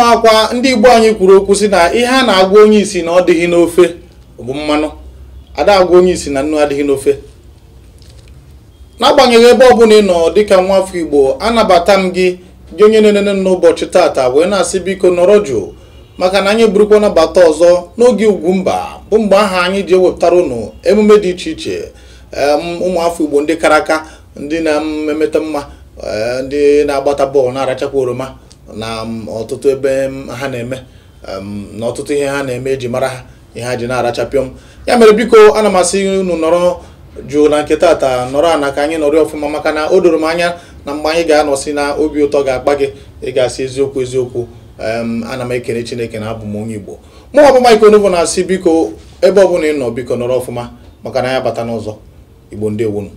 ụmụakwa ndị igbo anyị kwuru okwu si na ihe a na-agwa onye isi na ọ dịghị n'ofe bụ mmanụ ada agwa onye isi na nnu adịghị n'ofe n'agbanyeghị ebe ọbụla ị nọ dịka nwa afọ igbo anabata m gị gị onye na-enene n'ụbọchị tata wee na-asị biko nọrọ jụụ maka na anyị burukwa nabata ọzọ n'oge ugwu mba bụ mgbe aha anyị ji ewepụtara ụnụ emume dị iche iche ụmụ afọ igbo ndị kara aka ndị na-emeta mma eh, ndị na-agbata bọọlụ na-arachakwa oroma na um, ọtụtụ ebe um, ha na-eme um, na ọtụtụ ihe ha na-eme eji mara ha ihe ha ji na-arachapịọ m ya mere biko ana m asị unu nọrọ jụụ na nke taata nọrọ ana ka anyị nọrọ ọfụma maka na o doro m anya na mgbe anyị ga-anọsi na obi ụtọ ga-akpa gị ị ga-asị eziokwu eziokwu ana m ekele chineke na abụ m onye igbo mụ ọbụ Mike Onuvu na-asị biko ebe ọbụla ị nọ biko nọrọ ọfụma maka na ya bata n'ụzọ igbo ndị ewunu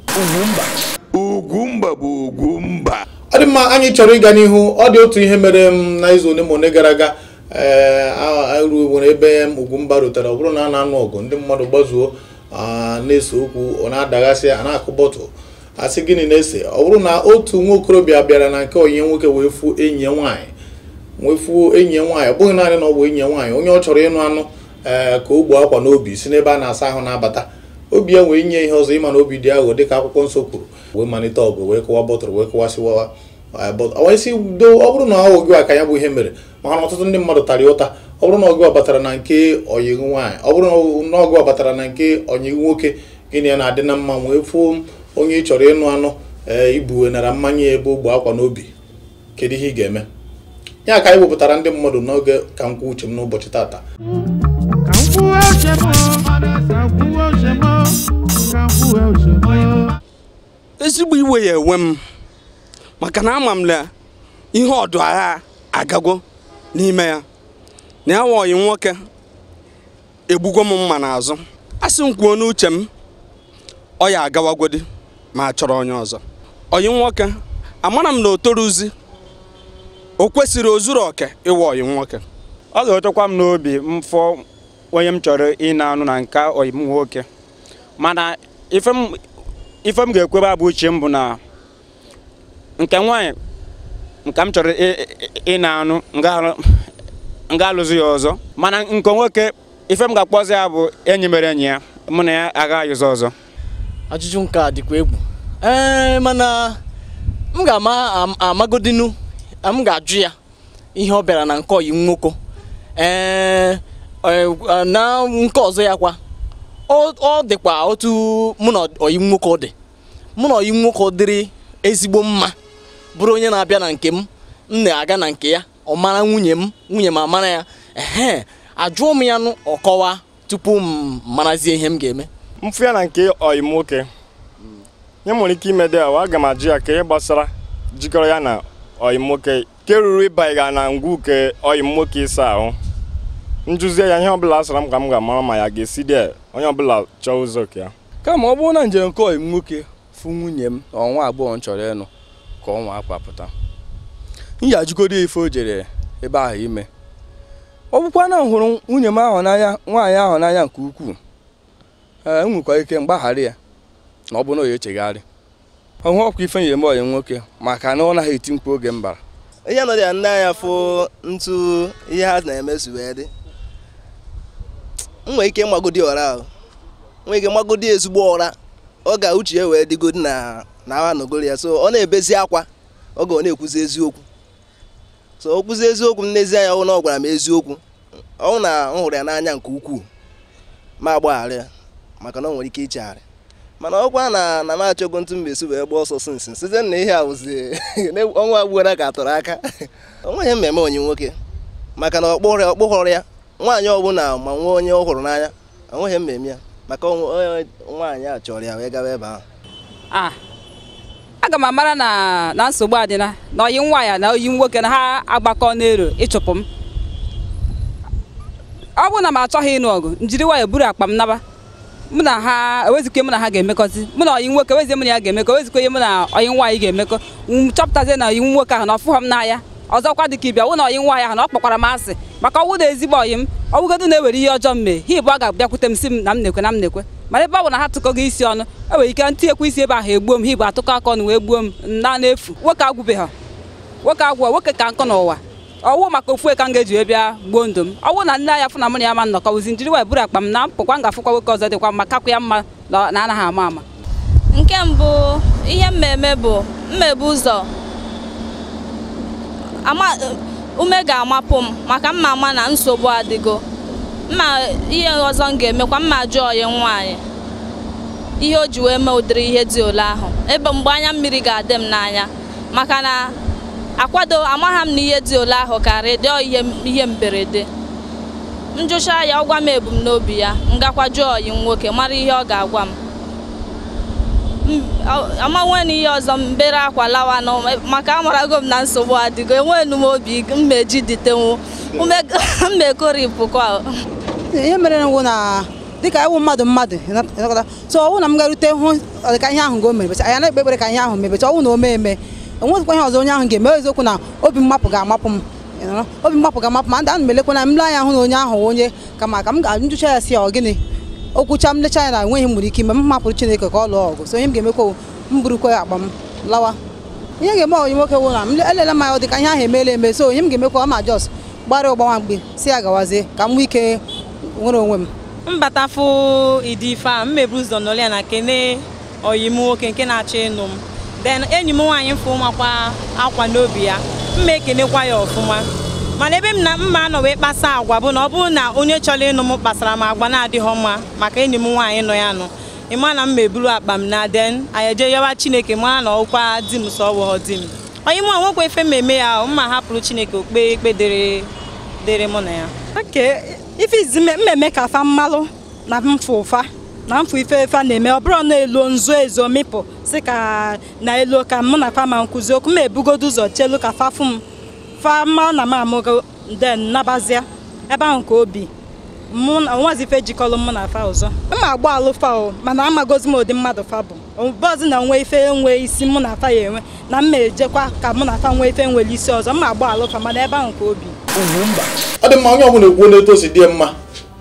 mba bụ ogwu. mma anyị chọrọ ịga n'ihu ọ dị otu ihe mere m na izu ole ma ole gara aga ee eh, ruo nwere ebe m mba rutere ọ bụrụ na a na-anụ ọgụ ndị mmadụ gbazuo na-ese okwu ọ na-adaghasị a na-akụ a asị gịnị na-ese ọ bụrụ na otu nwa okorobịa bịara na nke onye nwoke wee fuo enyi ya nwaanyị wee fuo enyi ya nwaanyị ọ bụghị naanị na ọ bụ enyi nwaanyị onye ọ chọrọ ịnụ anụ eh, ka o gbuo akwa n'obi si n'ebe a na-asa ahụ na-abata obi ya wee nye ihe ọzọ ịma na obi dị aghụghọ dịka akwụkwọ nsọ kwuru wee malite ọgụ wee kụwa bọtụrụ wee kụwasịwawa isi eh, do ọ bụrụ na ọ gịwa ka ya bụ ihe mere maka na ọtụtụ ndị mmadụ tara ụta ọ bụrụ na ọgụ batara na nke nwaanyị ọ bụrụ na ọgụ batara na nke ọnyị nwoke gịnị ya na-adị na mma wee fụo onye ị chọrọ ịnụ anụ ee eh, ibuwenara mmanya ebe ogbe akwa n'obi kedu ihe ị ga-eme ya ka anyị wepụtara ndị mmadụ n'oge ka m kwuo uche m n'ụbọchị tata ezigbo iwe ya enwe m maka na ama m na ihe ọdụ agha agago n'ime ya na ya wọghị nwoke egbugo m mma n'azụ a sị m kwuo n'uche m ọ ya agawagodi ma chọrọ onye ọzọ oyi nwoke amara m na o toruzi o kwesịrị ozuru oke ịwa oyi nwoke ọ ga-etokwa m n'obi mfọ onye m chọrọ ị na-anụ na nka oyi m nwoke mana ife m ga-ekwebe abụ uche m bụ na nke nwaanyị nke m chọrọ ịna-anụ nga alụzi ya ọzọ mana nke nwoke ife m ga-akpọzi ya bụ enyi mere enyi ya mụ na ya agha ayụzi ọzọ ajụjụ nke a dịkwa egwu ee mana m ga-ama amagodinu m ga-ajụ ya ihe ọ bịara na nke oyi nwoko. ee e, e, na nke ọzọ ya kwa ọ dịkwa otu mụ na oyi nwoko dị mụ na oyi nwoke dịrị ezigbo mma bụrụ onye na-abịa na nke m m na-aga na nke ya ọ mara nwunye m nwunye m amara ya ehe ajụọ m ya nụ ọkọwa tupu m marazie ihe m ga-eme mfụ ya na nke ọyị nwoke ya nwere ike ime dị awa aga m ajụ ya ka ihe gbasara jikọrọ ya na ọyị nwoke nke ruru ịbanyega na ngwu nke ọyị nwoke ịsa ahụ njuzie ya ihe ọbụla asara m ka m ga-amara ma ya ga-esi dị onye ọbụla chọọ ụzọ ka ya kama ọ bụrụ na njem nke ọyị m nwoke fụ nwunye m ọnwa agbọghọ m chọrọ ịnụ ka ọnwa akwapụta m ji ajụgodo ife o jere ebe ahụ ime ọ bụkwa na hụrụ nwunye m ahụ n'anya nwaanyị ahụ n'anya nke ukwuu E nwekwa ike mgbaghara ya na ọ bụ na o ya echegharị ọhụ ọkwa ife nyere m ọyị nwoke maka na ọ naghị eti mkpu oge mbara. ihe nọrọ ya nne anya fụ ntu ihe ha na-emezu wee dị nwee ike mgbagodi ọra ahụ nwee ike mgbagodi ezigbo ọra ọ ga uche ya wee dịgodi na na anọgoro ya so ọ na-ebezi akwa oge ọ na-ekwuzi eziokwu so o kwuzi eziokwu n'ezie ya ọ na ọ gwara m eziokwu ọ na m hụrụ ya n'anya nke ukwuu ma agbaghara ya maka na ọ nwere ike ichegharị mana ọkwa na na m achọgo ntụ mbesi wee gba ọsọ sinsi site na ihe awụzi ọnwa agbuola ka atọrọ aka onweghị mmemme onye nwoke maka na ọkpụrụ ọkpụghọrọ ya nwaanyị ọbụla ma nwee onye ọ hụrụ n'anya nweghị mmeme ya maka nwaanyị a chọrọ ya wee gawa ebe ahụ ah, aga m amara na na nsogbu adịna na oyi nwa ya na oyi nwoke na ha agbakọ n'ero ịchụpụ m ọ bụrụ na m achọghị ịnụ ọgụ njiri nwayọ buru akpa m naba mụ na ha ewezikwe mụ na ha ga-emekọzi mụ na oyi nwoke ewezie mụ na ya ga-emekọ ewezikwe ihe mụ na oyi nwaanyị ga-emekọ chọpụtazie na oyi nwoke ahụ na ọfụghọ m n'anya ọzọkwa dịka ịbịa wụ na oyi nwaanyị ahụ na ọ kpọkwara m asị maka ọnwụ na ezigbo oyi m ọnwụgodo na-ewere ihe ọjọọ m mee ha ịbụ ọ ga-abịakwute m si m na m na-ekwe na m na-ekwe mana ebe ọ bụ na ha tụkọ gị isi ọnụ e nwere ike ntị ekwe isi ebe ahụ egbuo m ha atụkọ akọ na wee gbuo m na n'efu nwoke agwụbeghị ha nwoke agwụ nwoke ka nkọ n'ụwa ọwụ maka ofu ka m ga-eji wee bịa gbuo ndụ m ọwụ na nne anya fụna na mụ na ya ma nnọkọ bụzi njiri wee bụrụ akpa m na mpụkwa nwoke ọzọ dịkwa mma kakwa ya mma na anaghị ama ama nke mbụ ihe mmemme bụ mmebu ụzọ ume ga-amapụ m maka mma ama na nsogbu adịgo mma ihe ọzọ m ga-emekwa mma jụọ ya nwaanyị ihe o ji wee mee ụdịrị ihe dị ole ahụ ebe mgbe anya mmiri ga-adị m n'anya maka na akwado amagha m na ihe dị ole ahụ karịa dịọ ihe mberede m jụchaa ya ọ gwa m ebumnobi ya m gakwa jụọ ọyi nwoke mara ihe ọ ga-agwa m Ama na ihe ọzọ mbere akwa lawa na maka amarago m na nsogbu adịgo enweenu m obi mmeji dịtenwu mmekoripụkwa ihe mere nwụ na dịka ewu mmadụ mmadụ so ọwụ na m hụ ka ihe ahụ ga na-ekpe ekpere ka ihe ahụ mebecha ọwụ na o mee eme enwezikwa ihe ọzọ onye ahụ ga-eme eziokwu na obi mmapụ ga-amapụ m obi mmapụ ga-amapụ ma ndị a na m elekwana m le anya hụ na onye ahụ onye kama ka m ga ya si ya ọ okwucha m lecha ya na enweghị m ike ime m mapụrụ Chineke ka ọ lụọ ọgụ so onye m ga-emekwa m burukwa akpa m lawa ihe ga-eme onye nwoke wụ na m elele m ya dịka ihe ahụ emeela eme so onye m ga-emekwa ọ ma jos gbara ụgbawa mgbe si ya gawazie ka m nwee ike nwere onwe m mbatafụ ịdị ife a mmebu ụzọ nọrọ ya na kene oyi m nwoke nke na-achọ ịnụ m Den enyi m nwaanyị fụ makwa akwa n'obi ya mma ekenekwa ya ọfụma mana ebe m na mma anọ wee kpasa agwa bụ na ọ bụrụ na onye chọrọ ịnụ m kpasara m agwa na-adịghị mma maka enyi m nwaanyị nọ ya nụ ịma na m meburu akpa m na den eje yawa chineke mara na ọkwa di m sọ ọwụghọ di m onye mụ nwekwa efe mmemme ya mma hapụrụ chineke okpe ikpe dịrị mụ na ya ife izi mmemme ka fa mmalụ na mfụ ụfa na mfụ ife efe na-eme ọ bụrụ na elu nzu ezo mịpụ si ka na elu ka mụ na fa ma nkụzi okwu m ebugodo ụzọ chelu ka fa m fama na m amụgo den nabazia ebe ahụ ka obi mụ na nwazi jikọrọ mụ na fa ọzọ mma agba alụ fa o mana amagozi m ụdị mmadụ fa bụ bọzi na nwe ife enwe isi mụ na fa ya enwe na mma ejekwa ka mụ na fa nwee ife nwere isi ọzọ mma agba alụ fa mana ebe ahụ ka obi ọ dị mma onye ọbụla ekwuo n'etu o si dị mma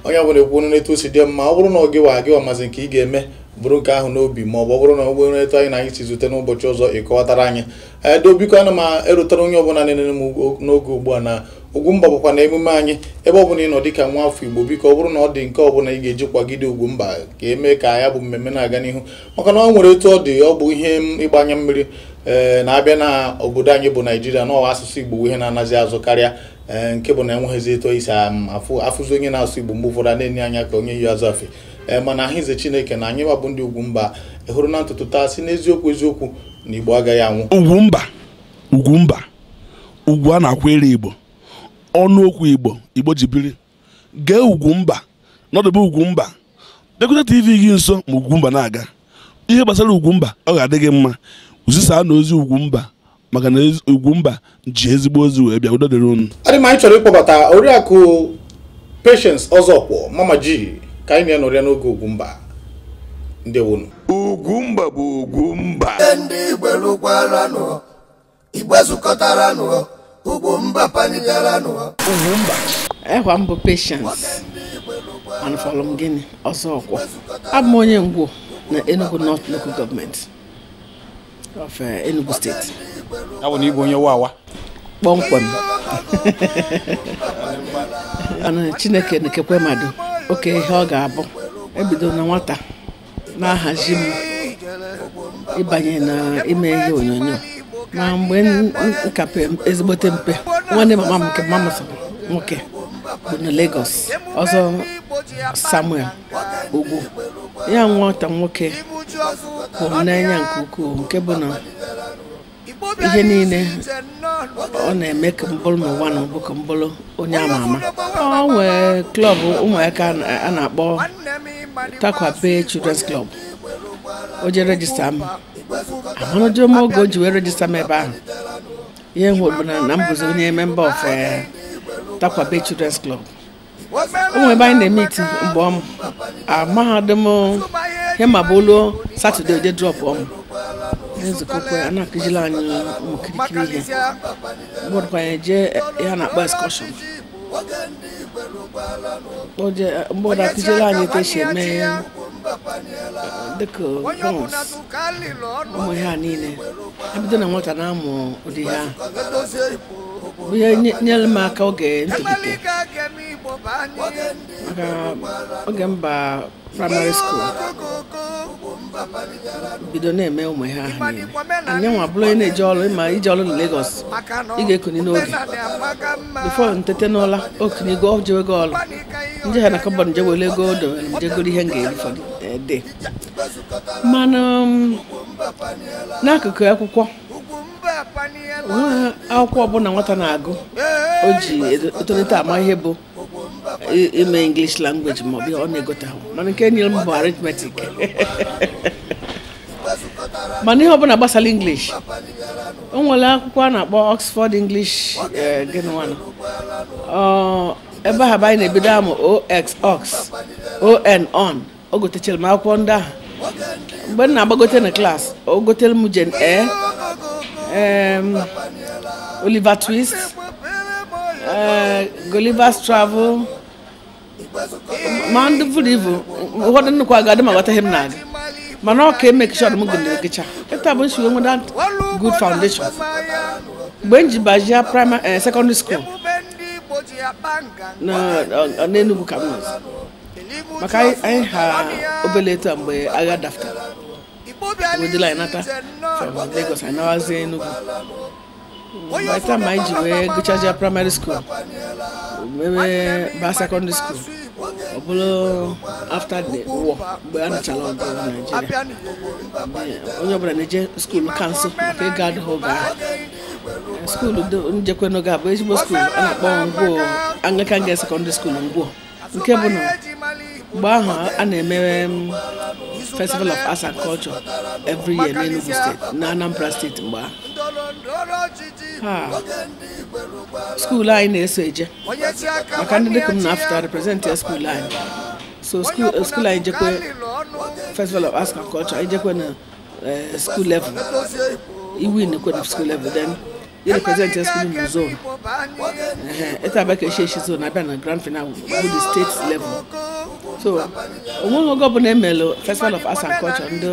onye ọbụla ekwuo n'etu o si dị mma ọ bụrụ na ọ gịwa agịwa mazi nke ị ga-eme bụrụ nke ahụ n'obi ma ọ bụ bụrụ na ọ bụrụ etu anyị na anyị si zute n'ụbọchị ọzọ ịkọwatara anyị edo eh, obiko ana m erutara onye ọbụla na m n'oge ugbu a na mba bụkwa na emume anyị ebe ọ bụla ị nọ dịka nwa afọ Igbo biko ọ bụrụ na ọ dị nke ọbụla ị ga-eji kwagide mba ka emee ka ya bụ mmemme na-aga n'ihu maka na ọ nwere etu ọ dị ọ bụ ihe ịgbanye mmiri eh, na-abịa na obodo anyị bụ Naijiria n'ọwa asụsụ Igbo ihe na-anazi azụ karịa eh, nke bụ na enweghịzi eto isi e um, afụzi onye na-asụ Igbo mgbe ụfọdụ a na-enye anya ka onye yi azụ afe Eh, mana aha ize chineke na anyị gbabụ ndị ugwu mba hụrụ na ntụtụ taa si n'eziokwu eziokwu na Igbo agaghị anwụ Ugwumba Ugwumba ugwu a na akwa ere Igbo ọnụokwu Igbo Igbo ji biri gee Ugwumba nọdụbe Ugwumba Bịakwute TV gị nso ma Ugwumba na-aga ihe gbasara Ugwumba ọ ga-adị gị mma zisaa na ozi Ugwumba maka na Ugwumba ji ezigbo ozi wee bịa udo dịrị unu adị m anyị chọrọ ịkpọbata oriakụ Patience Ọzọkwọ Mama ji. ka anyị na ya n'oge Ugwumba ndewonu Ugwumba bụ Ugwumba ndị igberukwaranụ igbe zụkọtaranụ panigaranụ Ugwumba ekwa mbụ mba, anụfọlụ m gịnị ọsọ ọkwọ abụ m onye ngwo na Enugu North Local Government of eh, Enugu State abụ na igwe onye wawa kpọmkwem chineke oke ihe ọ ga-abụ ebido na nwata na-ahazi m ịbanye na ime ihe onyonyo na mgbe nka ezigbote mpe nwanne mama m nke mama nwoke bụ na Lagos ọzọ Samuel Ogbu ya nwata nwoke bụ n'anya nke ukwuu nke bụ na ihe niile ọ na-eme ka mbụrụ ma ụwa na mbụ ka mbụrụ onye ama ama ọ nwee klọb ụmụaka a na-akpọ takwape children's club o rejista m amanụjọ m oge o ji wee rejista m ebe ahụ ihe hụ na na m bụzi onye memba of eh, takwape children's club ụmụ ebe anyị na-eme iti mgbe ọmụ amahadum ah, hema bụ olu satọde oje drọpụ ọmụ nzukọ kwa a na-akụziri anyị n'okirikiri kirikiri ihe bụrụkwa anyị jee ihe na-akpọ eskọshọn mgbọda akụziri anyị etu esi eme dịka bọns ụmụ ihe a niile ebido na nwata na-amụ ụdị ya ahụ ihe nye m aka oge ntolite maka oge mba praịmarị school bido na-eme ụmụ ha ahụ niile anyị nwa bụrụ onye na-eje ọrụ ịma ije ọrụ na legos ị ga ekonye n'oge bifo ntete n'ụla gụọ jee ego ọrụ nje ha na kọbọd nje were ego odo njegoro ihe m ga-eri fọdụ ede eh, mana um, n'akụkụ akwụkwọ akwụkwọ ọbụla nwata na-agụ o ji etolite ama ihe bụ ime English language ma ọ bịa ọ na-egote ahụ mana nke nyere m bụ arithmetic mana ihe ọbụla gbasara English o nwere akwụkwọ a na-akpọ Oxford English eh, gịnwana ebe eh, ahụ abaghị na-ebido amụ ox ox on on o gotechara m akwụkwọ ndị ahụ mgbe m na-agbagote na klas o gotere m Jane Eyre Oliver Twist eh, Gulliver's Travel ma ndị vụrụ ụfọdụ nnukwu aga adị ma aghọtaghị m na-aga mana ọ ka emekishọn m gụndere ekecha ịta bụ nsiwe nweda good foundation mgbe m ji bajia primary eh, secondary school eh, n'enugwu ka m nọzi maka anyị ha obele eto mgbe agha dafta wedịla anyị nata from Lagos anyị nawazie Enugu. by the time anyị ji wee gụchaja praịmarị skuul mebe ba sekọndịrị skuul ọ bụrụ afta the war mgbe a nụchara ọgụ na Naịjirịa onye ọbụla na-eje skuul ka maka ịga adịghị oge ahụ skuul njekwe n'oge a bụ ezigbo skuul a na-akpọ Ngwo Anglican Girls Secondary School Ngwo nke bụ na mgbe ahụ a na-emere um, festival of arts and culture every year n'Enugu steeti na Anambra steeti mgbe ahụ School line na-eso eje maka ndị dịka m na-afụta Represent ya school line. so school uh, skuul anyị jekwe festival of arts and culture anyị jekwe na eh, school level iwin kwe na school level then yɛne president school mu zone ɛta abɛka ɛhyiahyi zone abɛ na grand final wo the state level so ɔmonogo bụ na-emel festival of arts and culture ndị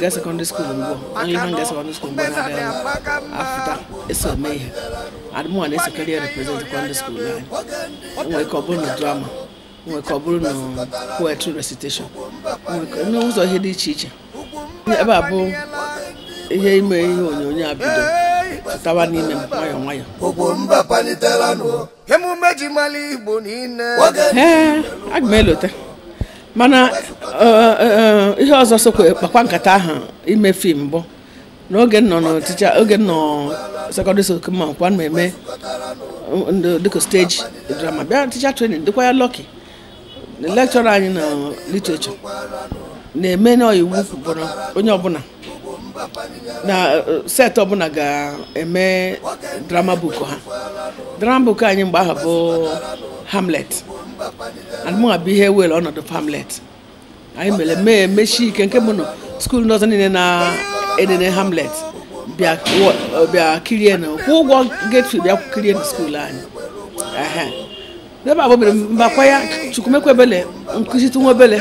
girls secondary school mbụ only hand girls secondary school mbụ na adịghị afụta eso eme ihe adịmụ a na-esekarị ya represent secondary school anyị nwere ka ọ bụrụ drama nwere ka ọ bụrụ poetry recitation n'ụzọ ihe dị iche iche ebe a bụ ihe ime ihe onyonyo a tawa n'ime m nwayọọ nwayọọ ogbo mba palitela nụ emume ji mara igbo niile ee aga m elote mana e, e, e, ihe ọzọ sokwa kpakwa nkata ahụ ime fim bụ n'oge nọ n'ọtịcha oge nọ sekọndịrị skul ma nkwa na-eme dịka steji drama bịa ticha trenin dịkwa ya lọki lekchọra anyị na literature na-eme n'iwu bụ onye ọbụla na set ọbụla ga-eme drama book ha drama book anyị mgbe ahụ bụ hamlet anụmanụ bụ ihe were ọnọdụ hamlet anyị mere mee mechi ike nke bụ na skuul nọzọ niile na-enene hamlet bịa kirie na kwụ ụgwọ gate bịa kirie na skuul anyị ebe a gbobere mbakwa ya chukwumekwebele nkụzi tunwebele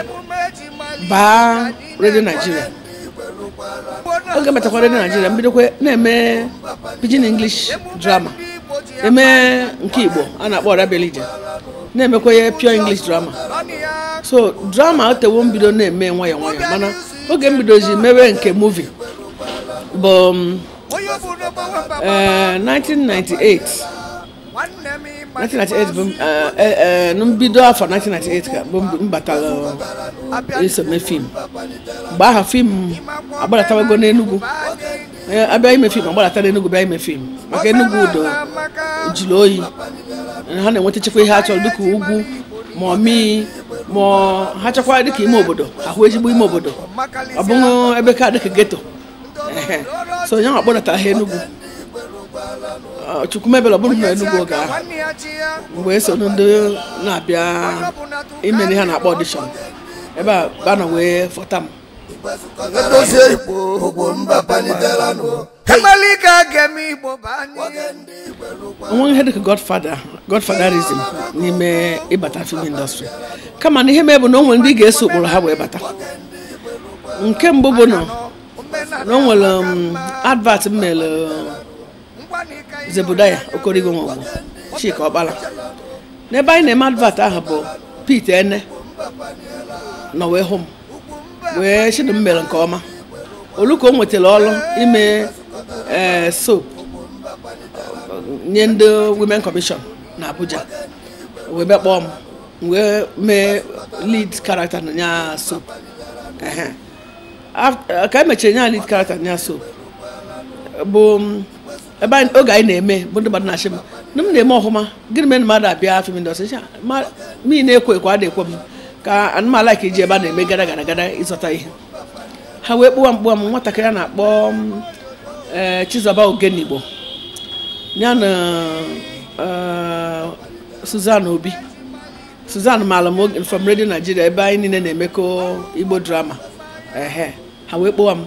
baa redio naijiria oge metakwara na naijiria kwe na-eme pidgin english drama eme nke igbo a na-akpọ ọrabelije na-emekwa pure english drama so drama otewo mbido na-eme nwayọọ nwayọ mana oge mbidozi mewe nke muvi bụ 1998 um, eh, 1998 bụ n'mbido afọ 1998 ka m batara iso mee fim mgbe aha fim agbadatawego n'Enugu abịa ime fim agbalata n'Enugu bịa ime fim maka Enugwu udo jiri oyi ha na-enwetachakwa ihe a chọrọ dịka ugwu ma ọmii ma ha chọkwara dịka ime obodo ahụ ezigbo ime obodo ọ bụghị ebe ka dịka geto so ya akpọdatara ha Enugu chukwumebela bụrụ na Enugu oge ahụ mgbe esoro ndị na-abịa imere ha na-akpọ ọdishọn ebe a bana wee fọta m onweghị ihe dịka godfather godfatherism n'ime ịbata film industry kama na ihe mee bụ na o nwere ndị ga-eso ụkpụrụ ha wee bata nke mbụ bụ na o nwere um, advert m mere um, Zebudaya okorigo Nwagwu Chika Ọkpala n'ebe anyị na-eme advat ahụ bụ Pete Ene nọ wee hụ m wee Chidum mere nke ọma olu ka o nwetara ọrụ ime e, soap nye ndị women commission na Abuja wee bịa kpọọ m wee mee lead character na soap ka emechara nya lead character na soap bụ ebe oge anyị na-eme bụ ndị mmadụ na-achị m ndị m na-eme ọhụma gịnị mere mmadụ abịa afọ m ndọsị ah, mmiri na-ekwo ekwo a na-ekwe m ka anụmanụ ka iji ebe a na-eme gara gara gara ịzọta ihe ha wee kpụwa kpụwa m nwatakịrị a na-akpọ eh, Chizọba Ogenigbo ya na eh, Suzan Obi Suzan maala m from redio Nigeria ebe anyị niile na-emekọ Igbo drama ehe ha wee kpụwa m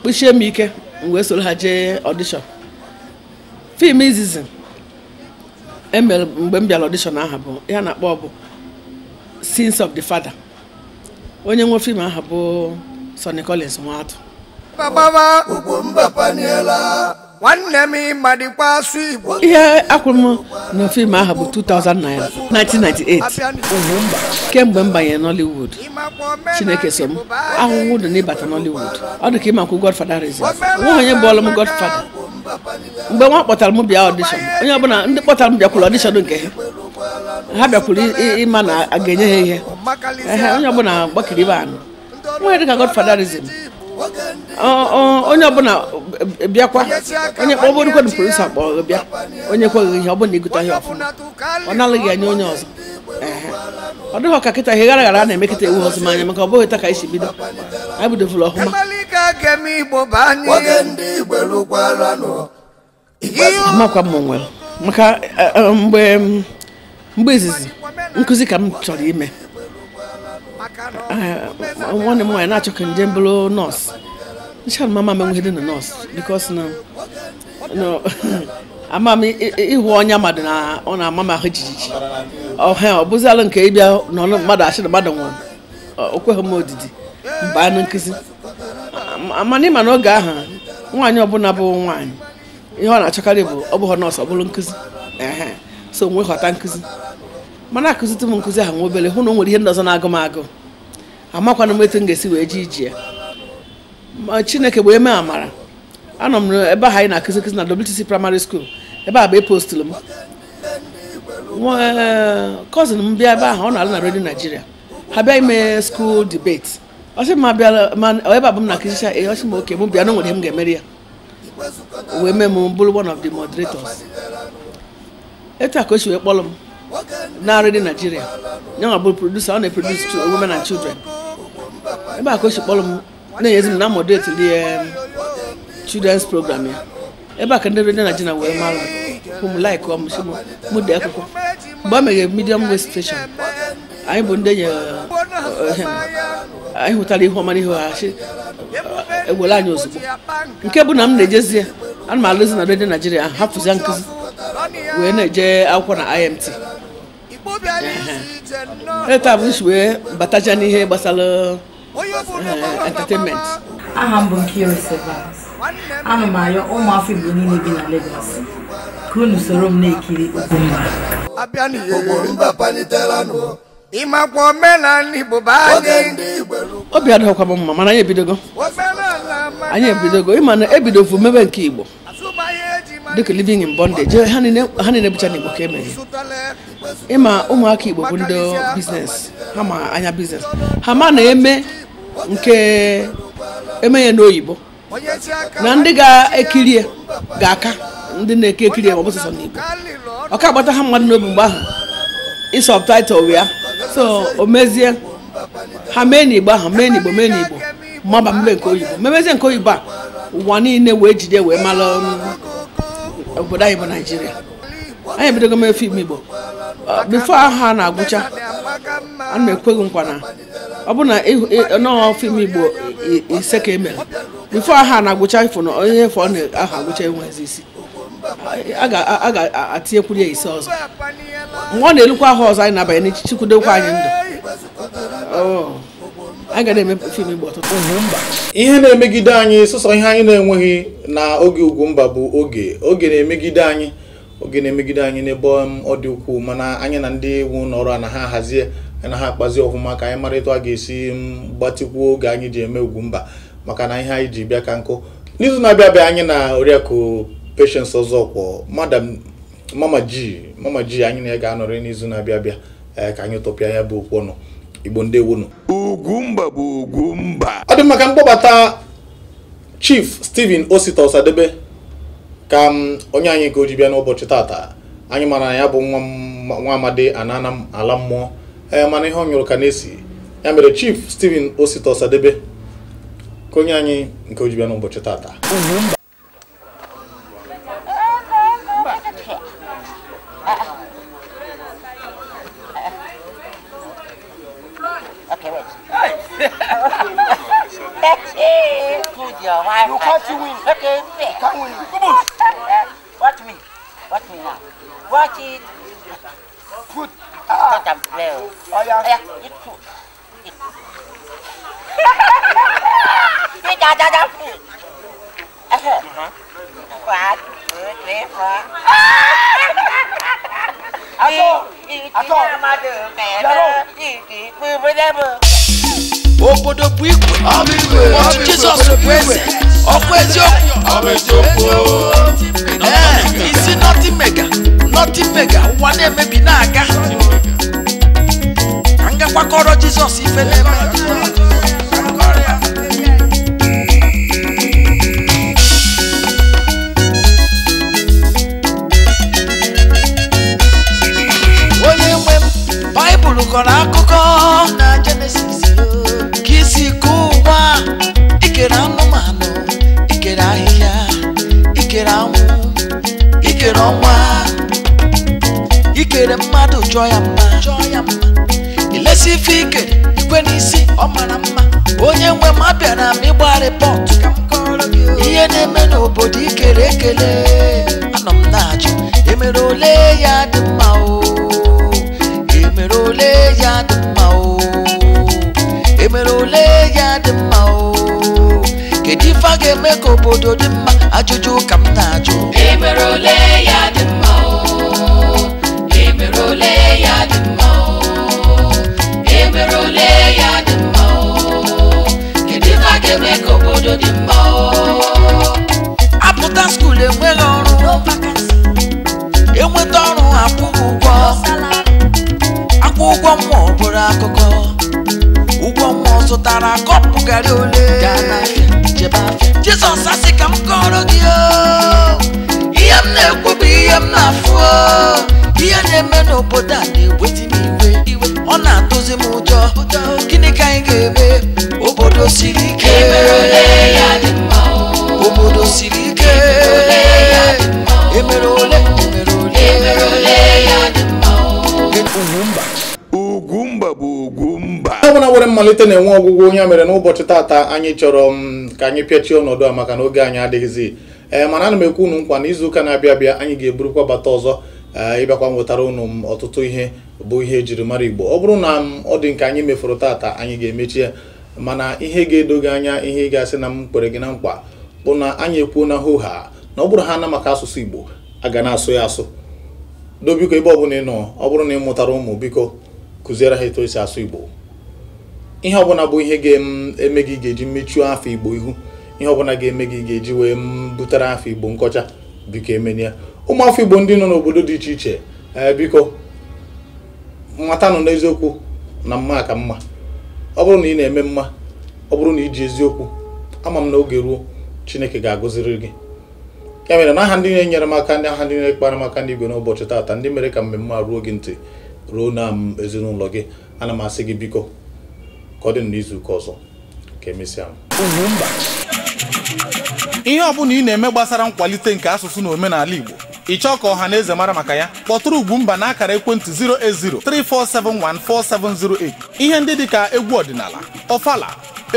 kpụchie m ike m wee soro ha jee ọdishọn fim izizi emere mgbe m bịara ọdishọn aha bụ ya na-akpọ bụ sins of the father onye nwe fim aha bụ Sonny Collins Nwatu nwanne m ịmadịkwa asụ Igbo ihe akwụrụ m na fim aha bụ 1998 kemgbe m banyere Nollywood Chineke so m ahụhụ dị n'ịbata Nollywood ọ dị ka ịmakwu Godfather reason nwa onye bụọlụ m Godfather mgbe nwa kpọtara m bịa ọdishọn onye ọbụla ndị kpọtara m bịakwuru ọdishọn nke ha ha bịakwuru ịma na a ga-enye ha ihe onye ọbụla gbakiri ibe anụ nwe dịka godfatherism onye ọbụla bịakwa onye kpọbụrụkwadụ produsa kpọrọ bịa onye kweghị ihe ọ bụla igụta ihe ọfụma ọ nalaghị anya onye ọzọ ọ dịghị ọka kịta ihe gara gara a na-emekịta iwu ọzọ manya maka ọ bụghị taa ka anyị si bido anyị bidovụrụ ọhụma ga-ege m igbo baa n'ihe amakwa m onwe maka eh, eh, mgbe mgbe izizi nkụzi ka m chọrọ ime eh, nwanne m nwaanyị na-achọ ka njem bụrụ nọọsụ ncha mama m enweghị dị na nọọsụ bikos na ama m ịhụ ọnya mmadụ na ọ na-ama m ahụ jijiji ọha ọ bụzialụ nke ịbịa nọ mmadụ achị na mmadụ nwụrụ okweghị m odidi mgbe anụ nkụzi amana ịma na oge ahụ nwaanyị ọbụla bụ nwaanyị ihe ọ na-achọkarị bụ ọ bụghị nọọsụ ọ bụrụ nkụzi so nwee ghọta nkụzi mana akụzite m nkụzi ahụ nwa obere hụ na o nwere ihe ndị ọzọ na-agụ m agụ amakwana m etu m ga-esi wee ji ije ma chineke bụ eme amara anọ m ebe ahụ anyị na-akụzi nkụzi na WTC primary school ebe a bụ epostụlụ m kọzin eh, m bịa ebe ahụ ọ na-alụ na redio naijiria ha bịa ime skuul debate ọ sị ma bịara ma ebe abụ m na akịsịcha ee ọ sị ma oke m bịa na nwere m ga-emeri ya o wee mee m bụrụ one of the moderators etu a ka o si wee kpọrọ m narị dị Naijiria ya nwa bụrụ producer ọ na eprodusi to women and children ebe a ka o si kpọrọ m na-enyezi m na moderate the um, children's program ya ebe a ka ndị redio Nigeria wee mara m like m si m dee akwụkwọ mgbe ọ meghere medium wave station anyị bụ ndị enyi hụtara ihe ọma ihe ihu ha e, ewere anyị ozugbo nke bụ na m na-ejezi ya ana m alụzi na redio naijiria ahụ hapụzia nkụzi wee na-eje akwụkwọ na imt taa bụ nsi wee bataja n'ihe gbasara eh, entertainment aha m bụ ana m ụmụafọ Igbo niile bi na ka unu soro m na-ekiri ịmakwa omenala Igbo bụ anyị obi adọghọkwa m mma mana anyị ebidogo anyị ebidogo ịma na ebidovu mebe nke igbo dịka living in bondage ha niile bụcha n'igbo ka emere ịma ụmụaka igbo bụ ndị biznes ha ma anya biznes ha ma na-eme nke eme ya n'oyibo na ndị ga ekiri ga-aka ndị na-eke ekiri ya ma ọ bụ n'igbo ọ ka agbata ha mmadụ n'obi mgbe ahụ isọb taịtụl so o mezie ha mee n'igbo ahụ mee n'igbo mee n'igbo maba mbe nke oyibo memezie nke oyibo a ụwa niile wee jide wee mara um, obodo anyị bụ naijiria anyị ebidogo mee fim igbo uh, bifo ahụ a na-agwụcha ana ekweghị nkwa na ọ bụ na nọọ fim igbo ise ka emere bifo ahụ a na-agwụcha ifo na onye efe ọ na-ahụ agwụcha enwezi isi a ga-atinyekwuru ya ise ọzọ mgbe ọ na-elukwa ahụ ọzọ anyị na-abanye n'echichi anyị ndụ Oh. ihe na-emegide anyị sụsọ ihe anyị na-enweghị na oge Ugwumba bụ oge oge na-emegide anyị oge na-emegide anyị n'ebe ọ dị ukwuu mana anyị na ndị iwu n'ọrụ ọrụ a na ha hazie na ha akpazi ọfụma ka anyị mara a ga-esi gbatịkwuo oge anyị ji eme Ugwumba maka na ihe anyị ji bịa ka nkụ n'izu na-abịa abịa anyị na oriakụ Patience ọzọ Madam Mama ji Mama ji anyị na ya ga-anọrị n'izu na-abịa abịa Eh, ka anyị tọpịa ya bụ okwu ọnụ igbo ndewonu ugwumba bụ ugwumba ọ dị maka mkpọbata chief Steven osita osadebe ka onye anyị ka o ji bịa n'ụbọchị tata anyị mara na ya bụ nwa amadi anana ala mmụọ ee eh, mana ihe ọ nyụrụ ka na-esi ya mere chief Steven osita osadebe ka onye anyị nke o ji bịa n'ụbọchị tata ikú ìjà jaja kù ẹhẹ wà á lè fọ. Atọ atọ yàrá ìdí gbogbo dẹ́mu. Obodo bu ikwe, ọtú Jizọs bụ eze, ọkụ eziokwu, ee isi nọtị mega, nọtị mega, ụwa na-emebi na-aga. agbakọrọ jizọs ife na-eme onye nwe m baịbụl kọrọ akụkọ na jenesis ka isi kụọ ikere anụmanụ ikere ahịhịa ikere anwụ ikere ọnwa ikere mmadụ chọọ ya mma emesi ife ike igwe n'isi ọ mara mma onye nwe m abịara m ịgba rịpọt ihe na-eme n'obodo ikere ekele anọ m na-ajụ emere ole ya dị mma o emere ole ya dị mma o emere ya dị mma o kedu a eme ka obodo dị mma ajụjụ ka m na-ajụ ụmụ bụrụ akụkọ ụgwọ mmụọ zụtara kọpụ garị ole jizọs asị ka m kọrọ gị ihe m na-ekwu bụ ihe m na-afụ ihe na-eme n'obodo a na-eweta m iwe ọ na-atụzi m ụjọ gịnị ka anyị ga-eme obodo siri ike e obodo siri ike emere ọbụla nwere mmalite na-enwe ọgwụgwọ onye mere n'ụbọchị taata anyị chọrọ m mm, ka anyị pịachie ọnọdụ a maka na oge anyị adịghịzi ee mana ana m ekwu unu nkwa na izuụka na-abịa abịa anyị ga-eburukwa bata ọzọ e, ịbịakwa nwetara ụnụ m mm, ọtụtụ ihe bụ ihe ejiri mara igbo ọ bụrụ na m mm, ọ dị nke anyị mefuru taata anyị ga-emechie mana ihe ga-edo gị anya ihe ị ga-asị na m kwere gị na mkpa bụ na anyị ekwuo na hoha na ọ bụrụ ha na maka asụsụ igbo aga na-asụ ya asụ do biko ebe ọ bụla ị nọ ọ bụrụ na ị mụtara ụmụ biko kụziere ha eto esi asụ igbo ihe ọbụla bụ ihe ga-eme gị ga-eji mechuo afọ igbo ihu ihe ọbụla ga-eme gị ga-eji wee butere afọ igbo nkọcha biko emenia ụmụ afọ igbo ndị nọ n'obodo dị iche iche eh, biko matanụ n'eziokwu na mma ka mma ọ bụrụ na ị na-eme mma ọ bụrụ na iji eziokwu ama m na oge ruo chineke ga-agụziri gị ya mere n'aha ndị na-enyere m aka ndị aha ndị na-ekpara m aka ndị igwe n'ụbọchị taata ndị mere ka mmemme a ruo gị ntị ruo na m ezinụlọ gị ana m asị gị biko ka ọ dị n'izuụka ọzọ ka emesịa ihe ọ bụla ị na-eme gbasara nkwalite nke asụsụ na omenala Igbo ị chọọ ka ọha na eze mara maka ya kpọtụrụ Ugwumba na akara ekwentị 08034714708 ihe ndị dịka egwu ọdịnala ọfala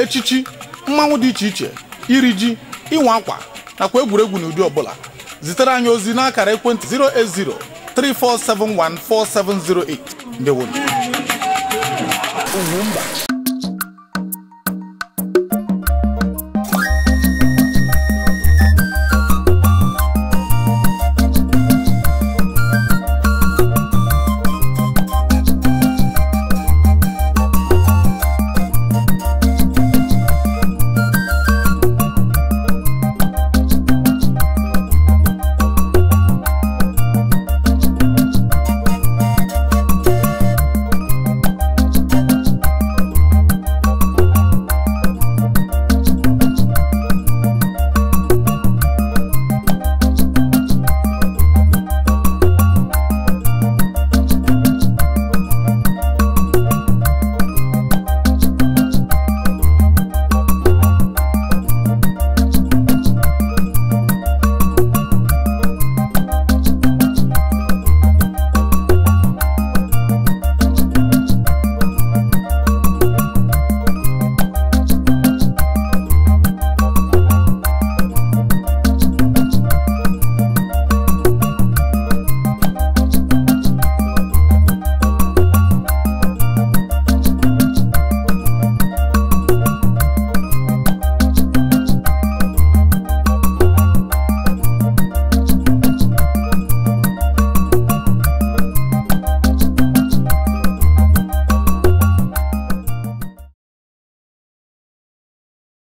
echichi mmanwụ dị iche iche iri ji ịnwa akwa nakwa egwuregwu n'ụdị ọbụla zitere anyị ozi n'akara ekwentị 08034714708 ndewo Ugwumba